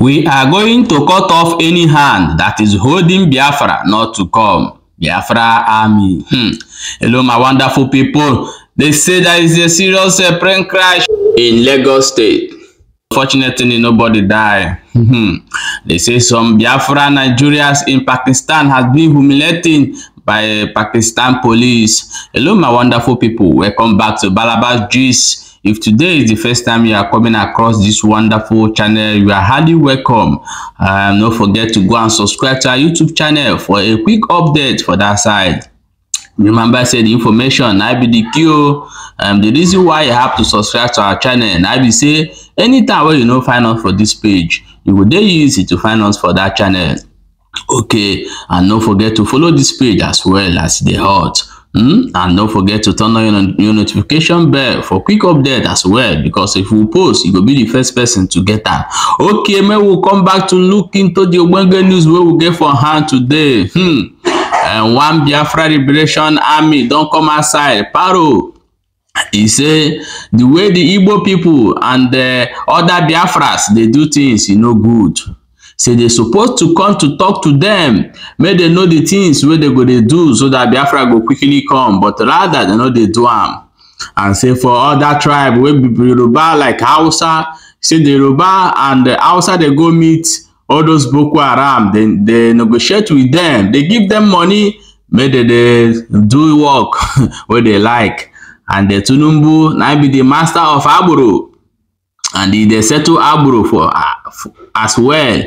We are going to cut off any hand that is holding Biafra not to come. Biafra army. Hmm. Hello, my wonderful people. They say there is a serious uh, plane crash in Lagos State. Fortunately, nobody died. Hmm. they say some Biafra Nigerians in Pakistan has been humiliating by Pakistan police. Hello, my wonderful people. Welcome back to Balabas Juice. If today is the first time you are coming across this wonderful channel, you are highly welcome. Um, don't forget to go and subscribe to our YouTube channel for a quick update for that side. Remember, I said information, I be the cure. Oh. Um, the reason why you have to subscribe to our channel, I be say, anytime where you know find us for this page, it will be easy to find us for that channel. Okay, and don't forget to follow this page as well as the heart. Mm? And don't forget to turn on your, your notification bell for quick update as well because if we post, you will be the first person to get that. Okay, man, we'll come back to look into the Obenge news where we get for hand today. Hmm. And eh, one Biafra Liberation Army don't come outside. Paro. He say the way the Igbo people and the eh, other Biafras they do things, you e know, good say they supposed to come to talk to them. make they know the things where they go dey do so dat biafra go quickly come but rather they know they do am and say for other tribe wey be yoruba like hausa say the yoruba and the hausa they go meet all those boko haram they negotiate with them. They give them money make they dey do work where they like and the tinubu now be the master of Aburu. and e dey settle agboro for uh, as well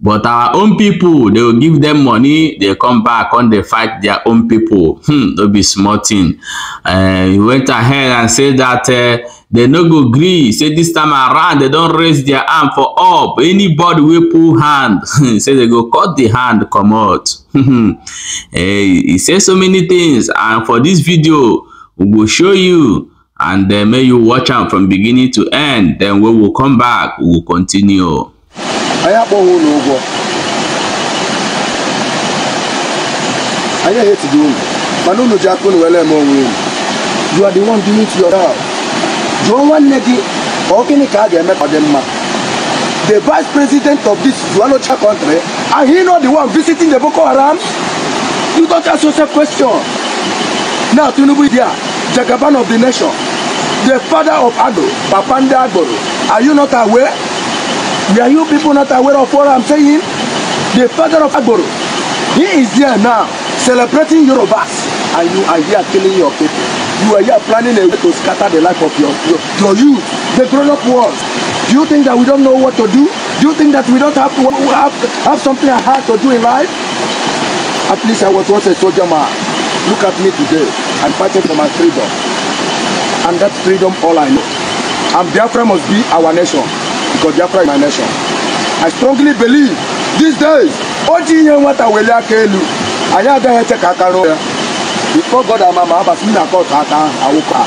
but our own people, they will give them money They come back come dey fight their own people. hmm no be small tin e eh, went ahead and say dat eh, they no go gree say this time around they don't raise their hand for up anybody will pull hand say they go cut the hand come comot eh, He said so many things, and for this video we will show you and then make you watch out from beginning to end then we will come back we will continue anyị akpọghị ụlọ ụgwọ anyị ehetighị unu mana unu ji aka unu were eme onwe unu you are the one doing it yourself jụọ nwanne gị ka ọ gịnị ka a ga-eme ka dị mma the vice president of this Zualocha country and he not the one visiting the Boko Haram you don't ask yourself question now Tinubu there Jagaban of the nation the father of Ado Babanda Agboro are you not aware Are you people not aware of what I'm saying? The father of Agboro, he is there now celebrating Yorubas and you are here killing your people. You are here planning a way to scatter the life of your, your, your youth, the grown-up world. Do you think that we don't know what to do? Do you think that we don't have, to, have, have something hard to do in life? At least I was once a soldier man. Look at me today. I'm fighting for my freedom. And that freedom all I know. And Biafra must be our nation because Biafra is my nation. I strongly believe these days ojii ihe nwata weli aka elu anyị agaghị eche ka aka rụọ ya before God ama ma abasị m na kọtụ aka awụkọ ha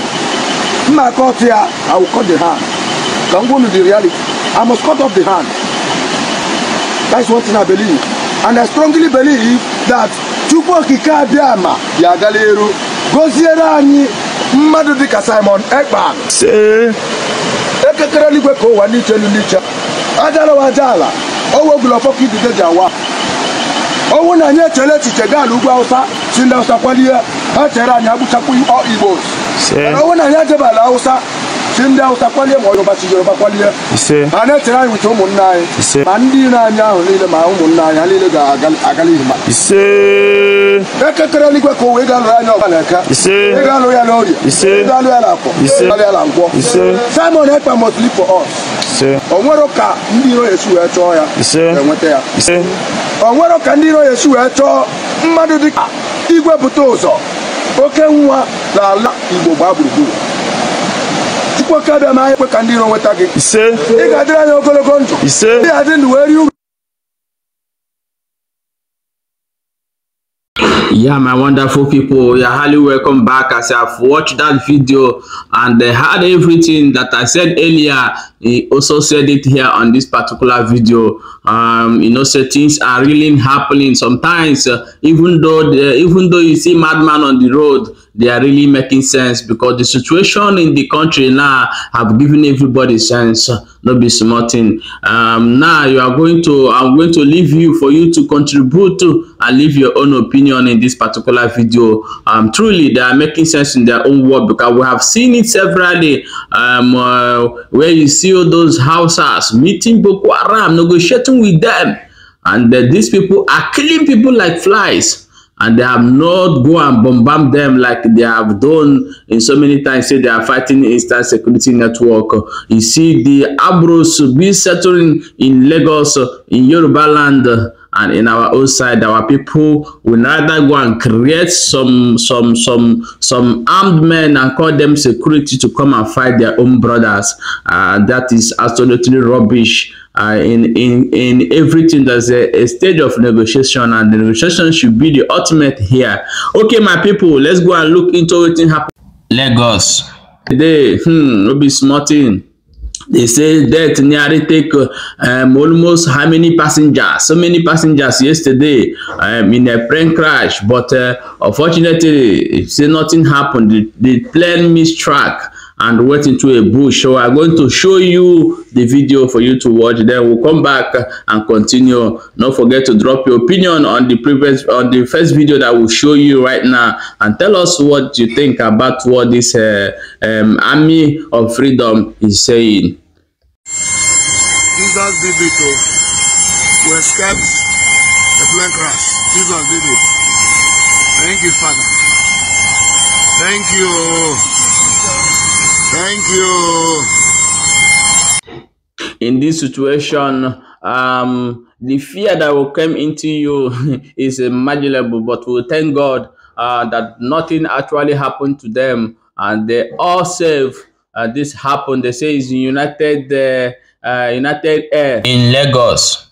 mma kọtụ ya awụkọ the hand ka m gwunu the reality I must cut off the hand that's one thing I believe and I strongly believe that Chukwu Okike Abịama ga-agala eru gọziere mmadụ dịka Simon Ekpan. okekere eluigwe ka ụwa n'iche elu n'iche ajalawa aja ala owegula ọfọkụ idide ji awa ọnwụ na anyị echele echiche gaa n'ugwu awụsa si ndị awụsa kwalie ha chere anyị agbuchapụ igbo ọnwụ na anyị ejebala awụsa si ndị awụsa kwalie ma yoruba si yoruba kwalie ha na-etere anyị uche ụmụnne anyị ma ndị na anyị ahụ niile ma ụmụnna anyị ha niile ga-agala ihu ma ekekere eluigwe ka ụwa ị ga-alụ anya ọba na-eka ị ga-alụ ya n'orie ị ga-alụ ya na akwọ ị ga-alụ ya na nkwọ simon ekpa must live for us o nwero ka ndị iro esi wee chọọ ya enweta e ya o nwero ka ndị iro esi wee chọọ mmadụ dịka igwe bute ụzọ oke nwa na ala igbo gbaa gburugburu chukwu oke abịa ma ekwe ka ndị iro nweta gị ise ị ga-adịrị anya ogologo ndụ ise dị adị ndụ wee rie yeah my wonderful people you're highly welcome back as i've watched that video and they had everything that i said earlier he also said it here on this particular video um you know so things are really happening sometimes uh, even though the, uh, even though you see madman on the road they are really making sense because the situation in the country now have given everybody sense no be small thing um, now you are going to i'm going to leave you for you to contribute to and leave your own opinion in this particular video um, truly they are making sense in their own world because we have seen it severally um, uh, where you see all those houses meeting boko haram negotiating with them and that uh, these people are killing people like flies and they have not go and bombard them like they have done in so many times say they are fighting eastern security network you see the abros be settling in lagos in yoruba land and in our own side our people will neither go and create some some some some armed men and call them security to come and fight their own brothers uh, that is absolutely rubbish uh, in in in everything there's a, a stage of negotiation and the negotiation should be the ultimate here okay my people let's go and look into what happened lagos today hmm no be smarting. they say that nearly take um, almost how many passengers so many passengers yesterday um, in a plane crash but uh, unfortunately say nothing happened the, the plane missed track and went into a bush. So I'm going to show you the video for you to watch. Then we'll come back and continue. Don't forget to drop your opinion on the previous on the first video that we'll show you right now and tell us what you think about what this uh, um, army of freedom is saying. Jesus did it to, to escape the plane crash. Jesus did it. Thank you, Father. Thank you. Thank you. In this situation, um, the fear that will come into you is imaginable, but we thank God uh, that nothing actually happened to them and they all safe. Uh, this happened. They say it's United uh, uh United Air in Lagos.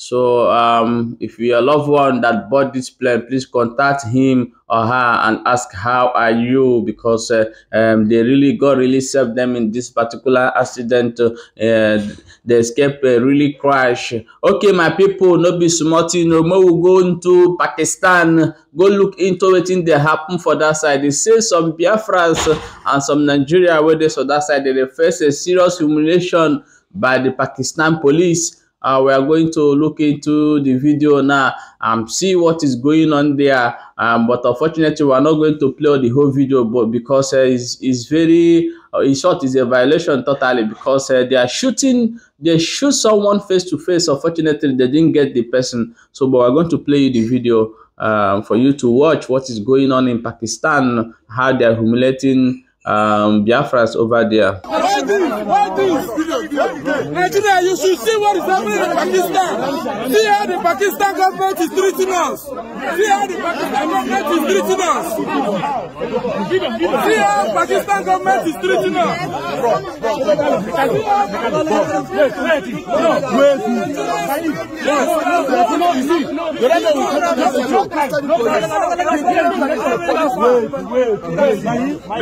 So um, if you're a loved one that bought this plane, please contact him or her and ask how are you because uh, um, they really God really saved them in this particular accident. Uh, the escape uh, really crash. Okay, my people, no be smarting. No more we go into Pakistan. Go look into it in they happen for that side. They say some Biafrans uh, and some Nigeria where they saw that side they face a serious humiliation by the Pakistan police uh, we are going to look into the video now and see what is going on there um, but unfortunately we are not going to play the whole video but because uh, it's, it's very uh, in short it's a violation totally because uh, they are shooting they shoot someone face to face unfortunately they didn't get the person so but we're going to play the video um, for you to watch what is going on in pakistan how they are humiliating um, Biafras over there. Nigeria, you should see what is happening in Pakistan. See how the Pakistan government is treating us. See how the Pakistan government is treating us. See how Pakistan government is treating us.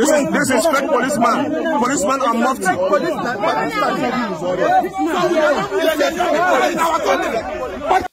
This is, disrespect policeman. Policeman are mufti. Policeman, policeman, policeman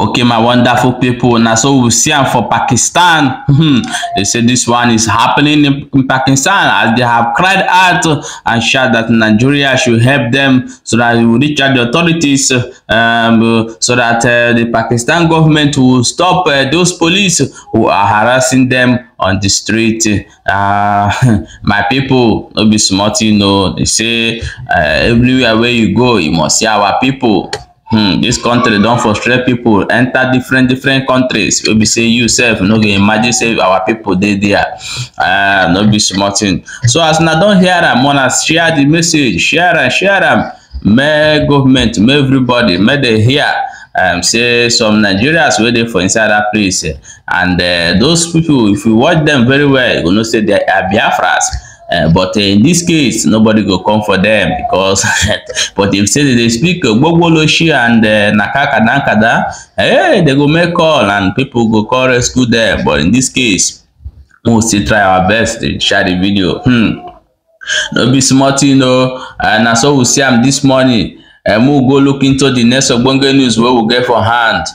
okay my wonderful people now so we see them for pakistan hmm. they say this one is happening in, pakistan as they have cried out and shout that nigeria should help them so that we reach out the authorities um, so that uh, the pakistan government will stop uh, those police who are harassing them on the street uh, my people no be smart you know they say uh, everywhere where you go you must see our people hmm dis country don frustrate people. Enter different different countries wey be say you sef no go imagine say our people. dey there ah no be small thing so as una don hear am una share the message share am share am make government make everybody May dey hear um, say some nigerians wey dey for inside dat place and uh, those people, if you watch them very well you go know say they are biafras Uh, but in this case, nobody go come for them because. but if say they speak Gbogboloshi and uh, eh, Nakakadankada, hey, eh, they go make call and people go call rescue them. But in this case, we we'll still try our best to share the video. Hmm. No be smart, you oh. know. And so we see am this morning and we'll go look into the next ogbonge news wey we get for hand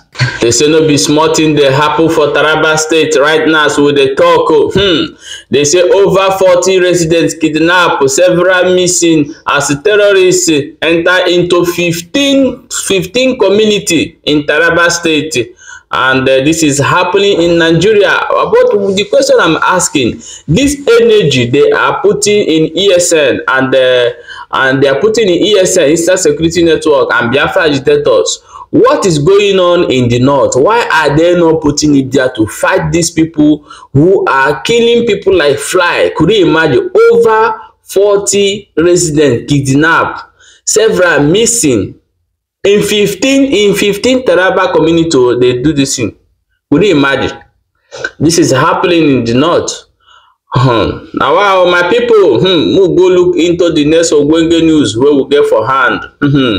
They say no be small tin dey happen for taraba state right now as we dey tok o oh. hmm dey say over forty residents kidnap several missing as terrorists enter into fifteen fifteen community in taraba state and uh, this is happening in nigeria but the question i'm asking this energy they are putting in esn and uh, and they are putting in ESN, Eastern Security Network, and Biafra agitators. What is going on in the north? Why are they not putting it there to fight these people who are killing people like fly? Could you imagine? Over 40 residents kidnapped, several missing. In 15, in 15 Taraba community, oh, they do this thing. Could you imagine? This is happening in the north um na why my people, um move go look into di next ogbonge news wey we get for hand um hmm.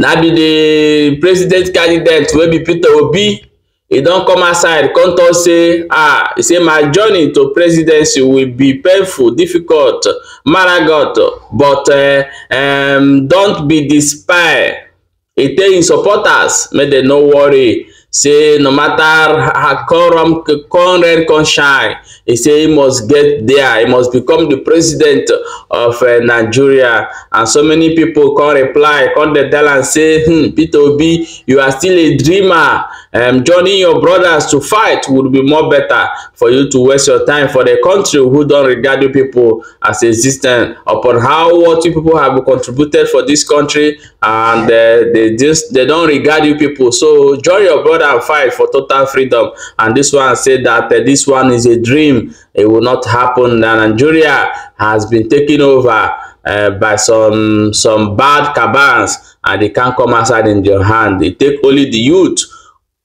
na be di president candidate wey be peter obi e don come aside. come talk say ah he say my journey to presidency will be painful difficult maragot but uh, um, don't be despair e tell im supporters make dem no worry Say no matter how Koram Conrad can shine, he say he must get there. He must become the president of uh, Nigeria. And so many people can reply, can they tell and say, hmm, Peter Obi, you are still a dreamer um, joining your brothers to fight would be more better for you to waste your time for the country who don't regard you people as existent upon how what you people have contributed for this country and uh, they just they don't regard you people so join your brother and fight for total freedom and this one said that uh, this one is a dream it will not happen and nigeria has been taken over uh, by some some bad cabans and they can't come outside in your hand they take only the youth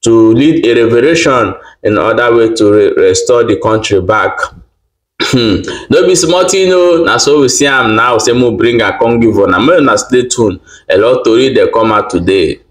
to lead a revolution in other way to re restore the country back no be small tin o na so we see am now say mo bring am come give una make una stay tuned a lot tori dey come out today